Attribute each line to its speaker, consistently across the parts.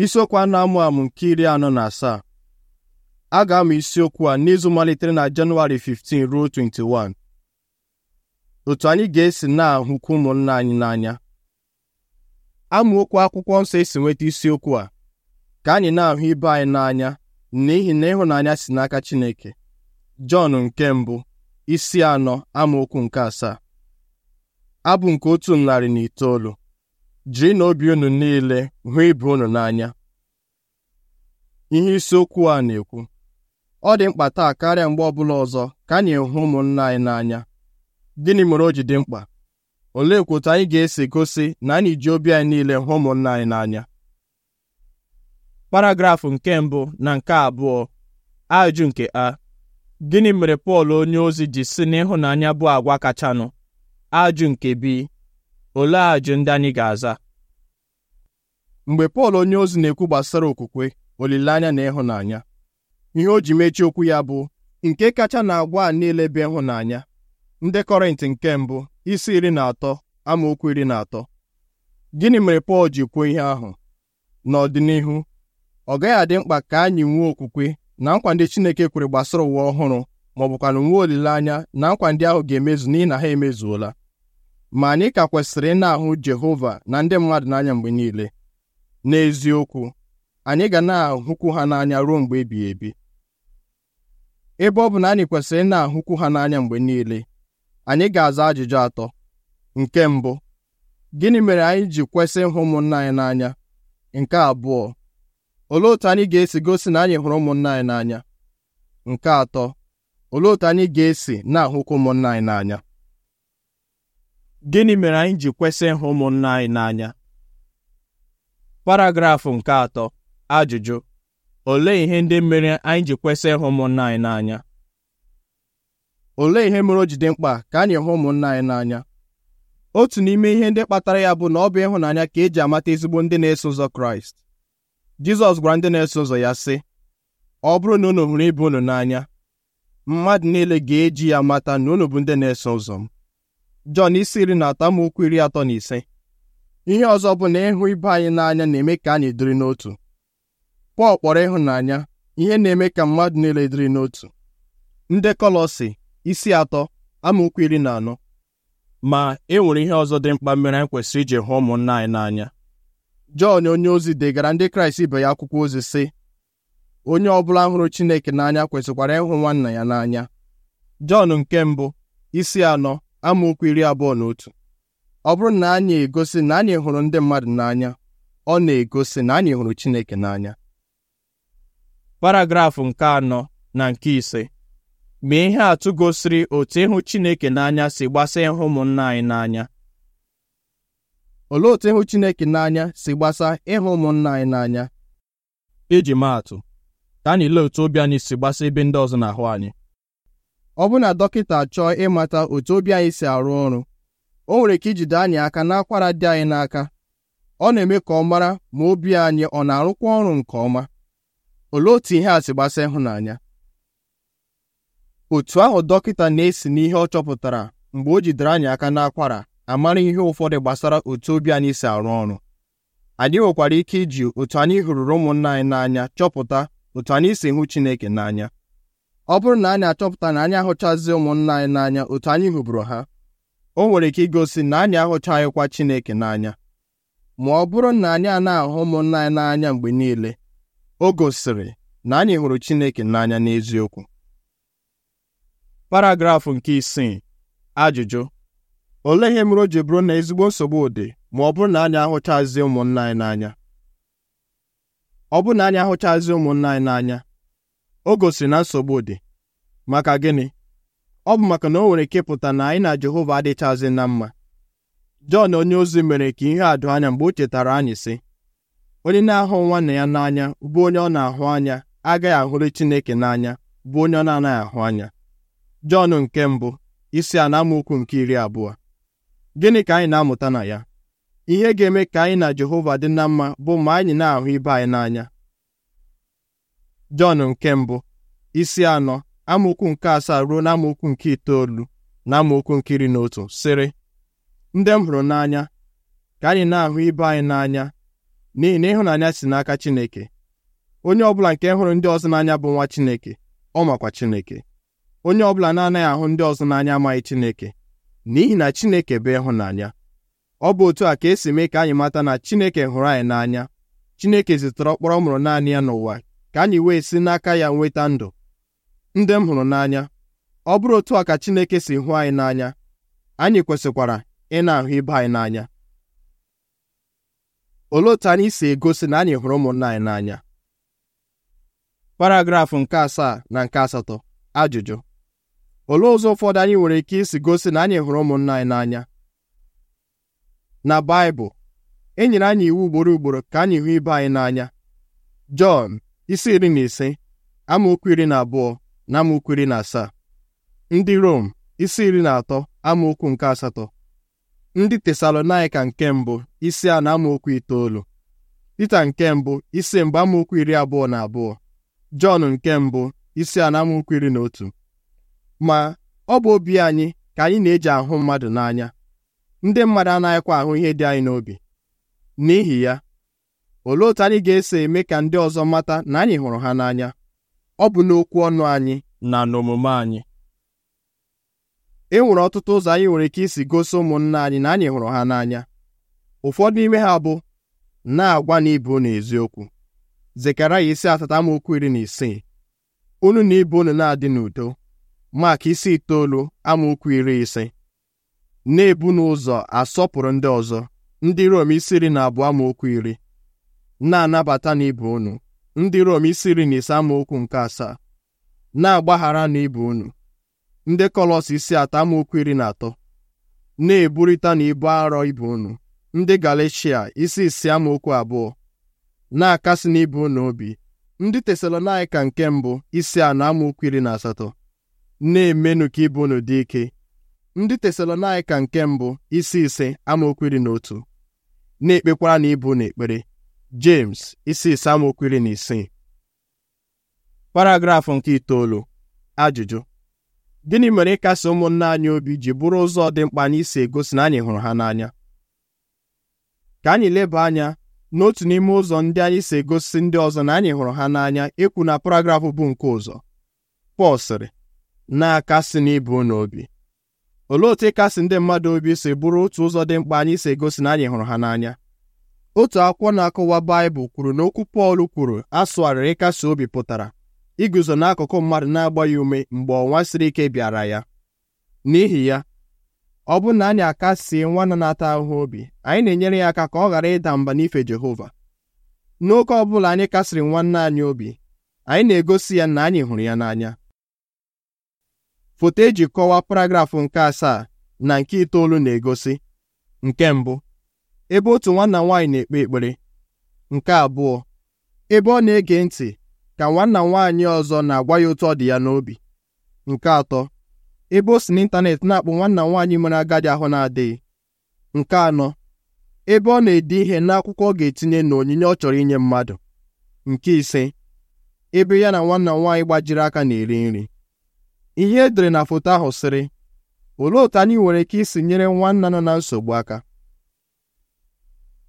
Speaker 1: isiokwu a na-amụ amụ nke iri anọ na asaa a ga-amụ isiokwu a n'izu malitere na Jenụwarị 15 ruo 21 otu anyị ga-esi na-ahụkwu ụmụnna anyị n'anya okwu akwụkwọ nsọ esi nweta isiokwu a ka anyị na-ahụ ibe anyị n'anya n'ihi na ịhụnanya si n'aka Chineke Jọn nke mbụ isi anọ amaokwu nke asaa abụ nke otu narị na itoolu jiri na obi unu niile hụ ibe unu n'anya ihe isiokwu a na-ekwu ọ dị mkpa taa karịa mgbe ọbụla ọzọ ka anyị hụ ụmụnna anyị n'anya gịnị mere o ji dị mkpa olee otu anyị ga-esi gosi na anyị ji obi anyị niile hụ ụmụnna anyị n'anya paragrafụ nke mbụ na nke abụọ ajụ nke a gịnị mere Pọl onye ozi ji si n'ịhụnanya bụ agwa kachanụ ajụ nke bi olee ajụ ndị anyị ga-aza mgbe Pọl onyeozi na-ekwu gbasara okwukwe olileanya na ịhụnanya ihe o ji mechie okwu ya bụ nke kacha na-agwa a niile bụ ịhụnanya ndị Kọrịntị nke mbụ isi iri na atọ amaokwu iri na atọ gịnị mere Pọl ji kwuo ihe ahụ n'ọdịnihu ọ gaghị adị mkpa ka anyị nwee okwukwe na nkwa Chineke kwere gbasara ụwa ọhụrụ ma bụkwa na nwee olileanya na nkwa ahụ ga-emezu n'ihi na ha emezuola ma anyị ka kwesịrị ị na-ahụ Jehova na ndị mmadụ n'anya mgbe niile n'eziokwu anyị ga na-ahụkwu ha n'anya ruo mgbe ebighị ebi ebe ọ bụ na anyị kwesịrị ị na-ahụkwu ha n'anya mgbe niile anyị ga-aza ajụjụ atọ nke mbụ gịnị mere anyị ji kwesị ịhụ ụmụnna anyị n'anya nke abụọ olee otu anyị ga-esi gosi na anyị hụrụ ụmụnna anyị n'anya nke atọ olee otu anyị ga-esi na-ahụkwu ụmụnna anyị n'anya gịnị mere anyị ji kwesị ịhụ ụmụnna anyị n'anya paragrafụ nke atọ ajụjụ olee ihe ndị mere anyị ji kwesị ịhụ ụmụnna anyị n'anya olee ihe mere o jide mkpa ka anyị hụ ụmụnna anyị n'anya otu n'ime ihe ndị kpatara ya bụ na ọ bụ ịhụnanya ka eji amata ezigbo ndị na-eso ụzọ kraịst jizọs gwara ndị na-eso ụzọ ya sị ọ bụrụ na unu hụrụ ibe unu n'anya mmadụ niile ga-eji ya mata na unu bụ ndị na-eso ụzọ m Jọn isi iri na atọ amaokwu iri atọ na ise ihe ọzọ bụ na ịhụ ibe anyị n'anya na-eme ka anyị dịrị n'otu Pọl kpọrọ ịhụnanya ihe na-eme ka mmadụ niile dịrị n'otu ndị Kọlọsi isi atọ amaokwu iri na anọ ma e nwere ihe ọzọ dị mkpa mere anyị kwesịrị iji hụ ụmụnna anyị n'anya Jọn onye ozi degara ndị Kraịst ibe ya akwụkwọ ozi sị onye ọ bụla hụrụ Chineke n'anya kwesịkwara ịhụ nwanna ya n'anya Jọn nke mbụ isi anọ amaokwu iri abụọ na otu ọ bụrụ na anyị egosi na anyị hụrụ ndị mmadụ n'anya ọ na-egosi na anyị hụrụ Chineke n'anya paragrafụ nke anọ na nke ise ma ihe atụ gosiri otu ịhụ Chineke n'anya si gbasaa ịhụ ụmụnna anyị n'anya olee otu ịhụ Chineke n'anya si gbasa ịhụ ụmụnna anyị n'anya iji atụ: ka anyị lee otu obi anyị si gbasa ebe ndị ọzọ na-ahụ anyị ọ bụ na dọkịta chọọ ịmata otu obi anyị si arụ ọrụ o nwere ike ijide anyị aka n'akwara dị anyị n'aka ọ na-eme ka ọ mara ma obi anyị ọ na-arụkwa ọrụ nke ọma olee otu ihe a si gbasa ịhụnanya otu ahụ dọkịta na-esi n'ihe ọ chọpụtara mgbe o jidere anyị aka n'akwara amara ihe ụfọdụ gbasara otu obi anyị si arụ ọrụ anyị nwekwara ike iji otu anyị hụrụrụ ụmụnna anyị n'anya chọpụta otu anyị si hụ Chineke n'anya ọ bụrụ na anyị achọpụta na anyị ahụchazi ụmụnna anyị n'anya otu anyị hụburu ha o nwere ike igosi na anyị ahụchaghịkwa Chineke n'anya ma ọ bụrụ na anyị na ahụ ụmụnna anyị n'anya mgbe niile o gosiri na anyị hụrụ Chineke n'anya n'eziokwu paragrafụ nke isii ajụjụ olee ihe mere o ji bụrụ na ezigbo nsogbu dị ma ọ bụrụ na anyị ahụchazi ụmụnna anyị n'anya ọ bụrụ na anyị ahụchazi ụmụnna anyị n'anya o gosiri na nsogbu dị maka gịnị ọ bụ maka na o nwere ike pụta na anyị na Jehova adịchazi na mma Jọn onye ozi mere ka ihe a doo anya mgbe o chetara anyị sị onye na-ahụ nwanne ya n'anya bụ onye ọ na-ahụ anya agaghị ahụrụ Chineke n'anya bụ onye ọ na-anaghị ahụ anya Jọn nke mbụ isi a nke iri abụọ gịnị ka anyị na-amụta na ya ihe ga-eme ka anyị na Jehova dị na mma bụ ma anyị na-ahụ ibe anyị n'anya Jọn nke mbụ isi anọ amaokwu nke asaa ruo na nke itoolu na amaokwu nke iri na otu sịrị ndị m hụrụ n'anya ka anyị na-ahụ ibe anyị n'anya n'ihi na ịhụnanya si n'aka Chineke onye ọbụla nke hụrụ ndị ọzọ n'anya bụ nwa Chineke ọ makwa Chineke onye ọbụla na-anaghị ahụ ndị ọzọ n'anya amaghị Chineke n'ihi na Chineke bụ ịhụnanya ọ bụ otu a ka esi mee ka anyị mata na Chineke hụrụ anyị n'anya Chineke zitere ọkpọrọ mụrụ naanị ya n'ụwa ka anyị wee si n'aka ya nweta ndụ ndị m hụrụ n'anya ọ bụrụ otu a ka Chineke si hụ anyị n'anya anyị kwesịkwara ị na-ahụ ibe anyị n'anya olee otu anyị si egosi na anyị hụrụ ụmụnna anyị n'anya paragrafụ nke asaa na nke asatọ ajụjụ olee ụzọ ụfọdụ anyị nwere ike isi gosi na anyị hụrụ ụmụnna anyị n'anya na Baịbụl e nyere anyị iwu ugboro ugboro ka anyị hụ ibe anyị n'anya Jọn isi iri na ise amaokwu iri na abụọ na amaokwu iri na asaa ndị Rom isi iri na atọ amaokwu nke asatọ ndị Tesalonaịka nke mbụ isi a na amaokwu itoolu Pita nke mbụ isi mbụ amaokwu iri abụọ na abụọ Jọn nke mbụ isi a na amaokwu iri na otu ma ọ bụ obi anyị ka anyị na-eji ahụ mmadụ n'anya ndị mmadụ anaghịkwa ahụ ihe dị anyị n'obi n'ihi ya olee otu anyị ga-esi eme ka ndị ọzọ mata na anyị hụrụ ha n'anya ọ bụ n'okwu ọnụ anyị na n'omume anyị e nwere ọtụtụ ụzọ anyị nwere ike isi gosi ụmụnna anyị na anyị hụrụ ha n'anya ụfọdụ n'ime ha bụ na-agwa na ibe unu eziokwu zekaraya isi atata amaokwu iri na isii unu na ibe unu na-adị n'udo maka isi itoolu amaokwu iri ise na-ebu n'ụzọ asọpụrụ ndị ọzọ ndị Rom isi iri na abụọ amaokwu iri na-anabata na ibe unu ndị Rom isi iri na ise amaokwu nke asaa na-agbaghara na ibe unu ndị Kọlọs isi atọ amaokwu iri na atọ na eburita na ibu arọ ibe unu ndị Galeshia isi isi amaokwu abụọ na-akasị na unu obi ndị Tesalonaịka nke mbụ isi anọ amaokwu iri na asatọ na-emenụ ka ibe unu dị ike ndị Tesalonaịka nke mbụ isi ise amaokwu iri na otu na-ekpekwara na ibe unu ekpere James isi samokwiri na isii paragrafụ nke itoolu ajụjụ gịnị mere ịkasi ụmụnna anyị obi ji bụrụ ụzọ dị mkpa anyị si egosi na anyị hụrụ ha n'anya ka anyị leba anya n'otu n'ime ụzọ ndị anyị si egosi ndị ọzọ na anyị hụrụ ha n'anya ikwu na paragrafụ bụ nke ụzọ Pọl sịrị na-akasị n'ibu n'obi olee otu ịkasi ndị mmadụ obi si bụrụ otu ụzọ dị mkpa anyị si egosi na anyị hụrụ ha n'anya otu akwụkwọ na-akọwa Baịbụl kwuru na okwu Pọl kwuru asụgharịrị ịkasi obi pụtara iguzo n'akụkụ mmadụ na-agba ya ume mgbe ọnwa siri ike bịara ya n'ihi ya ọ bụrụ na anyị akasie nwanna na-ata ahụhụ obi anyị na-enyere ya aka ka ọ ghara ịda mba n'ife Jehova N'oke ọ bụla anyị kasịrị nwanne anyị obi anyị na-egosi ya na anyị hụrụ ya n'anya foto eji kọwaa paragrafụ nke asaa na nke itoolu na-egosi nke mbụ ebe otu nwanna nwaanyị na-ekpe ekpere nke abụọ ebe ọ na-ege ntị ka nwanna nwaanyị ọzọ na-agwa ya otu ọ dị ya n'obi nke atọ ebe o si n'ịntanetị na akpụ nwanna nwaanyị mere agadi ahụ na-adịghị nke anọ ebe ọ na-ede ihe n'akwụkwọ ọ ga-etinye na onyinye ọ chọrọ inye mmadụ nke ise ebe ya na nwanna m nwaanyị gbajiri aka na-eri nri ihe edere na foto ahụ sịrị olee otu anyị nwere ike isi nyere nwanna nọ na nsogbu aka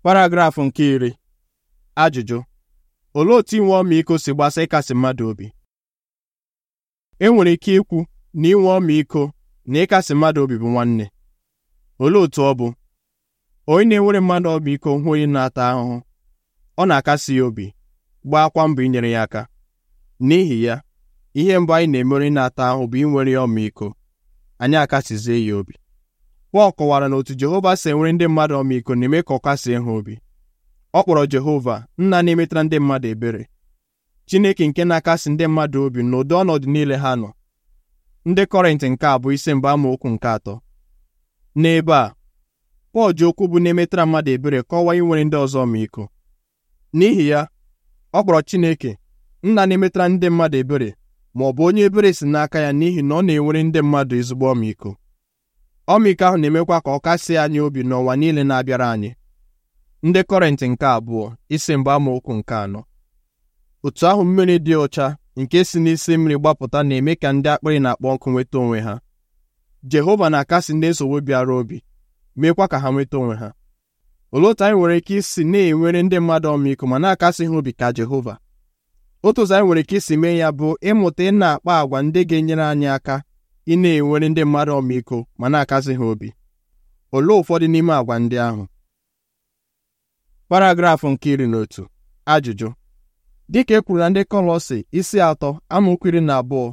Speaker 1: paragrafụ nke iri ajụjụ olee otu inwe ọmịiko si gbasa ịkasi mmadụ obi e nwere ike ikwu na inwe ọmịiko na ịkasi mmadụ obi bụ nwanne olee otu ọ bụ onye na-enwere mmadụ ọmịiko hụ onye na-ata ahụhụ ọ na-akasi ya obi akwa mbọ inyere ya aka n'ihi ya ihe mbụ anyị na-emere na-ata ahụ bụ inwere ya ọmịiko anyị akasizie ya obi Pọl kọwara na otu Jehova si enwere ndị mmadụ ọmịiko na-eme ka ọ ha obi ọ kpọrọ Jehova nna na-emetara ndị mmadụ ebere Chineke nke na-akasi ndị mmadụ obi n'ụdị ọnọdụ niile ha nọ ndị Kọrịntị nke a bụ isi mba amaokwu nke atọ n'ebe a Pọl ji okwu bụ na-emetara mmadụ ebere kọwaa inwere ndị ọzọ ọmịiko n'ihi ya ọ kpọrọ Chineke nna na-emetara ndị mmadụ ebere ma ọ bụ onye ebere si n'aka ya n'ihi na ọ na-enwere ndị mmadụ ezigbo ọmịiko ọmịiko ahụ na-emekwa ka ọ kasị anyị obi n'ụwa niile na-abịara anyị ndị kọrịntị nke abụọ isi mgbe amaokwu nke anọ otu ahụ mmiri dị ụcha nke si n'isi mmiri gbapụta na-eme ka ndị akpịrị na-akpọ nkụ nweta onwe ha Jehova na-akasị ndị nsogbu bịara obi meekwa ka ha nweta onwe ha olee otu anyị nwere ike isi na-enwere ndị mmadụ ọmịiko ma na-akasị ha obi ka Jehova otu ụzọ anyị nwere ike isi mee ya bụ ịmụta ị na-akpa àgwà ndị ga-enyere anyị aka ị na-enwere ndị mmadụ ọmịiko ma na-akasị ha obi olee ụfọdụ n'ime àgwà ndị ahụ paragrafụ nke iri na otu ajụjụ dịka e kwuru na ndị Kọlọsi isi atọ amaokwu iri na abụọ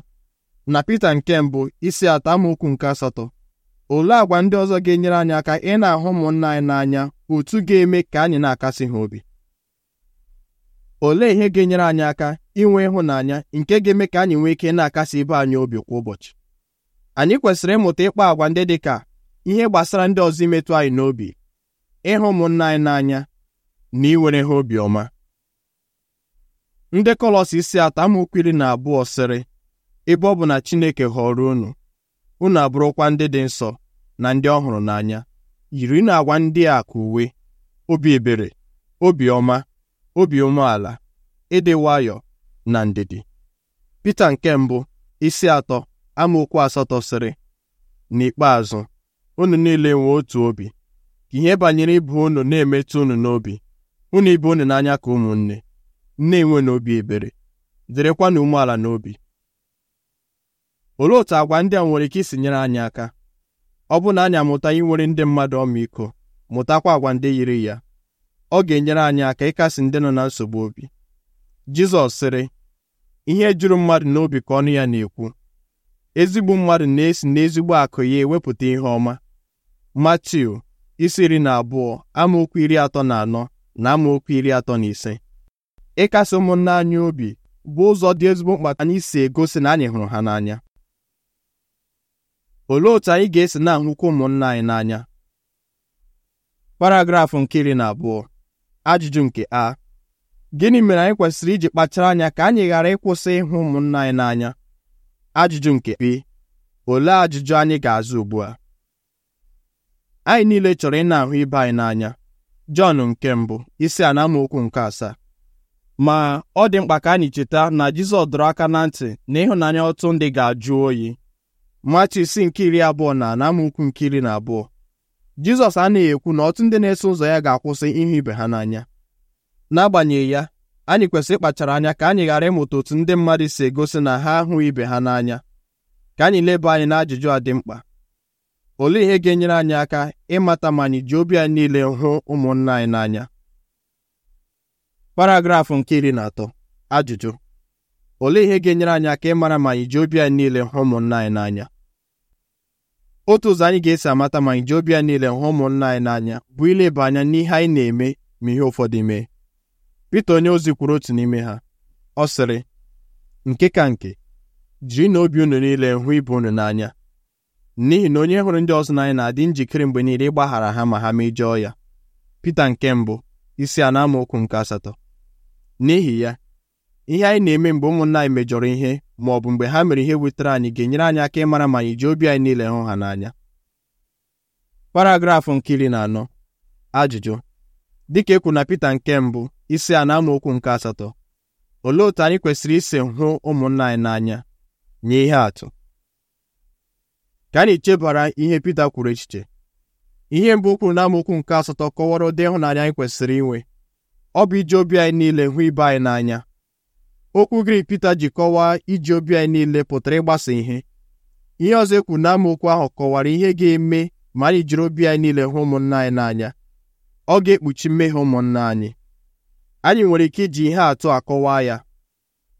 Speaker 1: na Pita nke mbụ isi atọ amaokwu nke asatọ olee àgwà ndị ọzọ ga-enyere anyị aka ị na-ahụ ụmụnna anyị n'anya otu ga-eme ka anyị na-akasị ha obi olee ihe ga-enyere anyị aka inwe ịhụnanya nke ga-eme ka anyị nwee ike na-akasị ibe anyị obi kwa ụbọchị anyị kwesịrị ịmụta ịkpa àgwà ndị dị ka ihe gbasara ndị ọzọ imetụ anyị n'obi ịhụ ụmụnna anyị n'anya na iwere ha obiọma ndị Kọlọs isi atọ amaokwu na abụọ sịrị ebe ọ bụ na Chineke họrọ unu unu abụrụkwa ndị dị nsọ na ndị ọhụrụ n'anya yiri na agwa ndị a ka uwe obi ebere obiọma obi umeala ịdị nwayọọ na ndidi Pita nke mbụ isi atọ amaokwu asatọ sịrị n'ikpeazụ unu niile nwee otu obi ka ihe banyere ịbụ unu na-emetụ unu n'obi unu ibe unu n'anya ka ụmụnne na-enwe n'obi ebere dịrịkwanụ umeala n'obi olee otu àgwà ndị a nwere ike isi nyere anyị aka ọ bụ na anyị amụta inwere ndị mmadụ ọmịiko mụtakwa àgwà ndị yiri ya ọ ga-enyere anyị aka ịkasi ndị nọ na nsogbu obi Jizọs sịrị ihe juru mmadụ n'obi ka ọnụ ya na-ekwu ezigbo mmadụ na-esi n'ezigbo akụ ya ewepụta ihe ọma Matiu isi iri na abụọ amaokwu iri atọ na anọ na amaokwu iri atọ na ise ịkasi ụmụnne anyị obi bụ ụzọ dị ezigbo mkpa anyị si egosi na anyị hụrụ ha n'anya olee otú anyị ga-esi na-ahụkwa ụmụnna anyị n'anya paragrafụ nke iri na abụọ ajụjụ nke a gịnị mere anyị kwesịrị iji kpachara anya ka anyị ghara ịkwụsị ịhụ ụmụnna anyị n'anya ajụjụ nke bi olee ajụjụ anyị ga-azụ ugbu a anyị niile chọrọ ị na-ahụ ibe anyị n'anya Jọn nke mbụ isi a na nke asaa ma ọ dị mkpa ka anyị cheta na Jizọs dọrọ aka na ntị na ịhụnanya ọtụ ndị ga-ajụ oyi Matu isi nke iri abụọ na na amaokwu nke iri na abụọ Jizọs anaghị ekwu na ọtụ ndị na-eso ụzọ ya ga-akwụsị ịhụ ibe ha n'anya n'agbanyeghị ya anyị kwesịrị ịkpachara anya ka anyị ghara ịmụta otu ndị mmadụ si egosi na ha hụ ibe ha n'anya ka anyị leba anyị n'ajụjụ a dị mkpa olee ihe ga-enyere anyị aka ịmata ma anyị ji obi anyị niile hụ ụmụnna anyị n'anya paragrafụ nke iri na atọ ajụjụ olee ihe ga-enyere anyị aka ịmara ma anyị ji obi anyị niile hụ ụmụnna anyị n'anya otu ụzọ anyị ga-esi amata ma anyị ji obi anyị niile hụ ụmụnna anyị n'anya bụ ileba anya n'ihe anyị na-eme ma ihe ụfọdụ mee onye onyeozi kwuru otu n'ime ha ọ sịrị nke ka nke jiri na obi unu niile hụ ibu unu n'anya n'ihi na onye hụrụ ndị ọzọ n'anya na-adị njikere mgbe niile ịgbaghara ha ma ha mejọọ ya Pita nke mbụ isi a na amaokwu nke asatọ n'ihi ya ihe anyị na-eme mgbe ụmụnna anyị mejọrọ ihe ma ọ bụ mgbe ha mere ihe wetara anyị ga-enyere anyị aka ịmara ma anyị ji obi anyị niile hụ ha n'anya paragrafụ nke iri na anọ ajụjụ dịka ekwu na Pita nke mbụ isi a na-amaokwu nke asatọ olee otu anyị kwesịrị isi hụ ụmụnna anyị n'anya nye ihe atụ ka anyị chebara ihe Pita kwuru echiche ihe mbụ kwuru na amaokwu nke asatọ kọwara ụdị ịhụnanya anyị kwesịrị inwe ọ bụ iji obi anyị niile hụ ibe anyị n'anya okwu Grik Pita ji kọwaa iji obi anyị niile pụtara ịgbasa ihe ihe ọzọ ekwu na amaokwu ahụ kọwara ihe ga-eme ma anyị jiri obi anyị niile hụ ụmụnna anyị n'anya ọ ga-ekpuchi mmehie ụmụnna anyị anyị nwere ike iji ihe atụ akọwa ya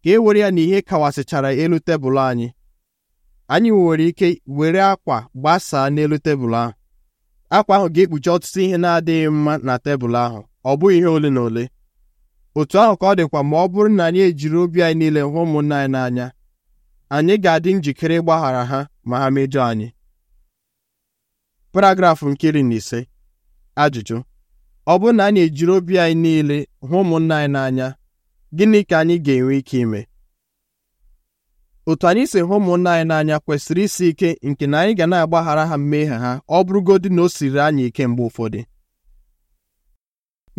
Speaker 1: ka e were ya na ihe kawasịchara elu tebụl anyị anyị nwere ike were akwa gbasaa n'elu tebụl ahụ akwa ahụ ga-ekpuchi ọtụtụ ihe na-adịghị mma na tebụl ahụ ọ bụghị ihe ole na ole otu ahụ ka ọ dịkwa ma ọ bụrụ na anyị ejiri obi anyị niile hụ ụmụnna anyị n'anya anyị ga-adị njikere ịgbaghara ha ma ha mejọ anyị paragrafụ nke iri na ise ajụjụ ọ bụrụ na anyị ejiri obi anyị niile hụ ụmụnna anyị n'anya gịnị ka anyị ga-enwe ike ime otu anyị si hụ ụmụnna anyị n'anya kwesịrị isi ike nke na anyị ga na-agbaghara ha mmehie ha ọ bụrụgodị na o siri anyị ike mgbe ụfọdụ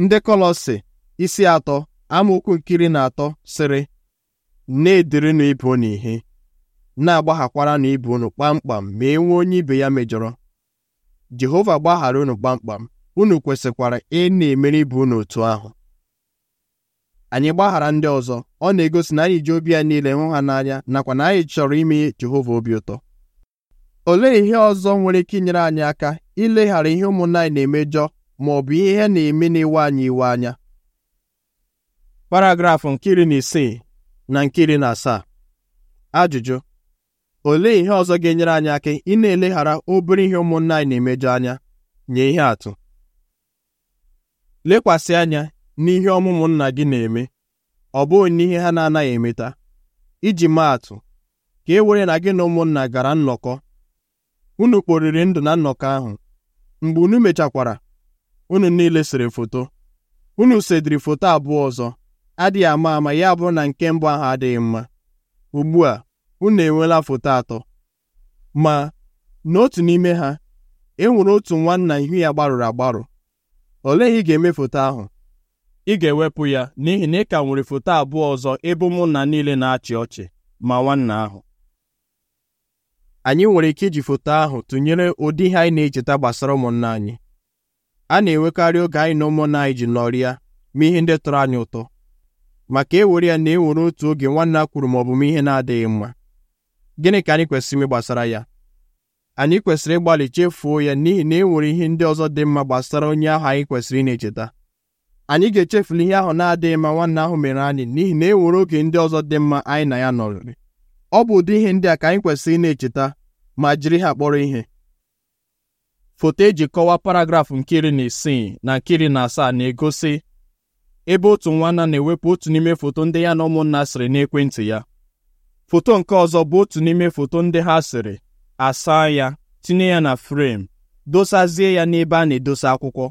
Speaker 1: ndị Kọlọsị isi atọ amaokwu nkiri na atọ sịrị na-edirinụ ibe unu ihe na-agbaghakwara ibe unu kpamkpam ma e nwee onye ibe ya mejọrọ Jehova gbaghara unu kpamkpam unu kwesịkwara ị na-emere ibe unu otu ahụ anyị gbaghara ndị ọzọ ọ na-egosi na anyị ji obi ya niile hụ ha n'anya nakwa na anyị chọrọ ime Jehova obi ụtọ olee ihe ọzọ nwere ike inyere anyị aka ileghara ihe ụmụnna anyị na-emejọ ma ọ bụ ihe na-eme na-ewe anyị iwe anya paragrafụ nke iri na isii na nke iri na asaa ajụjụ olee ihe ọzọ ga-enyere anyị aka ị na-eleghara obere ihe ụmụnna anyị na-emejọ anya nye ihe atụ lekwasị anya n'ihe ọmụmụ nna gị na-eme ọ bụghị n'ihe ha na-anaghị emeta iji maatụ atụ ka e were na gị na ụmụnna gara nnọkọ unu kporiri ndụ na nnọkọ ahụ mgbe unu mechakwara unu niile sere foto unu sediri foto abụọ ọzọ adịghị ama ama ya bụrụ na nke mbụ ahụ adịghị mma ugbu a unu enweela foto atọ ma n'otu n'ime ha e nwere otu nwanna ihu ya gbarụrụ agbarụ olee ihe ị ga-eme foto ahụ ị ga-ewepụ ya n'ihi na ị ka nwere foto abụọ ọzọ ebe ụmụnna niile na-achị ọchị ma nwanna ahụ anyị nwere ike iji foto ahụ tụnyere ụdị ihe anyị na-echeta gbasara ụmụnna anyị a na-enwekarị oge anyị na ụmụnna anyị ji nọrịa ma ihe ndị tọrọ anyị ụtọ maka ewere ya na enwere otu oge nwanna kwuru ma ọ bụ m ihe na-adịghị mma gịnị ka anyị kwesịrị ime gbasara ya anyị kwesịrị ịgbalị chefuo ya n'ihi na e nwere ihe ndị ọzọ dị mma gbasara onye ahụ anyị kwesịrị ị echeta anyị ga-echefula ihe ahụ na-adịghị mma nwanne ahụ mere anyị n'ihi na e nwere oge ndị ọzọ dị mma anyị na ya nọrịrị ọ bụ ụdị ihe ndị a ka anyị kwesịrị ị na-echeta ma jiri ha kpọrọ ihe foto eji kọwaa paragrafụ nke iri na isii na nke iri na asaa na-egosi ebe otu nwanna na-ewepụ otu n'ime foto ndị ya na ụmụnna sịrị n'ekwentị ya foto nke ọzọ bụ otu n'ime foto ndị ha sịrị asa ya tinye ya na frem dosazie ya n'ebe a na-edosa akwụkwọ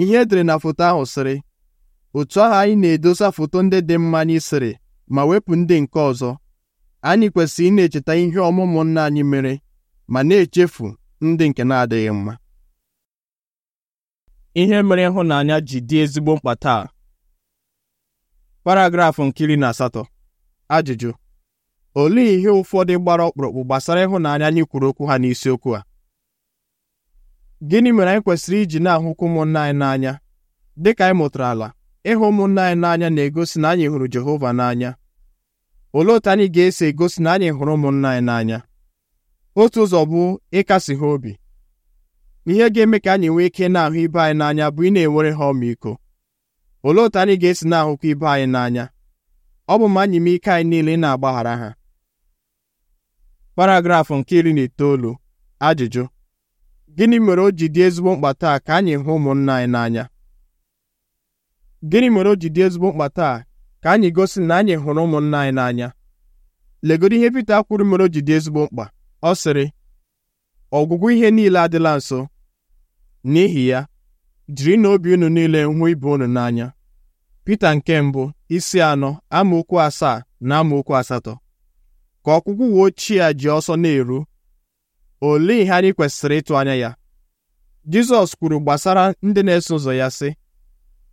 Speaker 1: ihe edere na foto ahụ sịrị otu ahụ anyị na-edosa foto ndị dị mma anyị sịrị ma wepụ ndị nke ọzọ anyị kwesịrị ịna echeta ihe ọmụmụ nna anyị mere ma na-echefu ndị nke na-adịghị mma ihe mere ịhụnanya ji dị ezigbo mkpa taa paragrafụ nkiri na asatọ ajụjụ olee ihe ụfọdụ gbara ọkpụrụkpụ gbasara ịhụnanya anyị kwuru okwu ha n'isiokwu a gịnị mere anyị kwesịrị iji na-ahụkwu ụmụnna anyị n'anya dịka anyị mụtara ala ịhụ ụmụnna anyị n'anya na-egosi na anyị hụrụ Jehova n'anya olee otu anyị ga-esi egosi na anyị hụrụ ụmụnna anyị n'anya otu ụzọ bụ ịkasi ha obi ihe ga-eme ka anyị nwee ike na-ahụ ibe anyị n'anya bụ ị na-enwere ha ọmịiko olee otu anyị ga-esi na-ahụkwa ibe anyị n'anya ọ bụ ma anyị ike anyị niile ị na-agbaghara ha paragrafụ nke iri na itoolu ajụjụ gịnị mere o ji dị ezigbo mkpa taa ka anyị hụ ụmụnna anyị n'anya gịnị mere o ji dị ezigbo mkpa taa ka anyị gosi na anyị hụrụ ụmụnna anyị n'anya legodo ihe Pita kwuru mere o ji dị ezigbo mkpa ọ sịrị ọgwụgwụ ihe niile adịla nso n'ihi ya jiri na obi unu niile hụ ibe unu n'anya Pita nke mbụ isi anọ amaokwu asaa na amaokwu asatọ ka ọgwụgwụ uwe ochie a ji ọsọ na-eru olee ihe anyị kwesịrị ịtụ anya ya Jizọs kwuru gbasara ndị na-eso ụzọ ya sị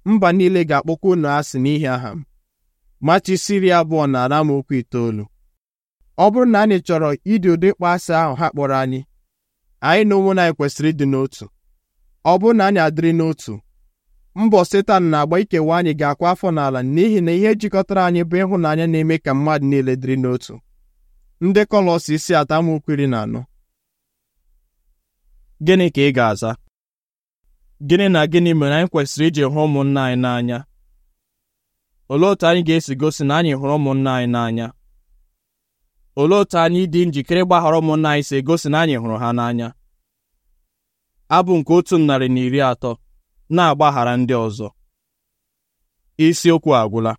Speaker 1: mba niile ga-akpọkwa unu asị n'ihi aha m Mati iri abụọ na okwu itoolu ọ bụrụ na anyị chọrọ ịdị ụdị ịkpọ asị ahụ ha kpọrọ anyị anyị na anyị kwesịrị ịdị n'otu ọ bụrụ na anyị adịrị n'otu mbọ setan na-agba ikewa anyị ga-akwa afọ n'ala n'ihi na ihe jikọtara anyị bụ ịhụnanya na-eme ka mmadụ niile dịrị n'otu ndị Kọlọs isi atọ amaokwu iri na anọ gịnị ka ị ga-aza gịnị na gịnị mere anyị kwesịrị iji hụ ụmụnna anyị n'anya olee otu anyị ga-esi gosi na anyị hụrụ ụmụnna anyị n'anya olee otu anyị dị njikere ịgbaghara ụmụnna anyị si egosi na anyị hụrụ ha n'anya abụ nke otu narị na iri atọ na-agbaghara ndị ọzọ isiokwu agwụla